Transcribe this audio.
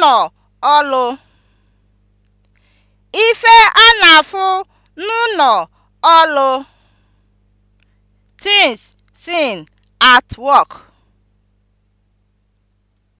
n'ụlọ ọlụ. Ife a na-afụ n'ụlọ ọlụ (things seen at work)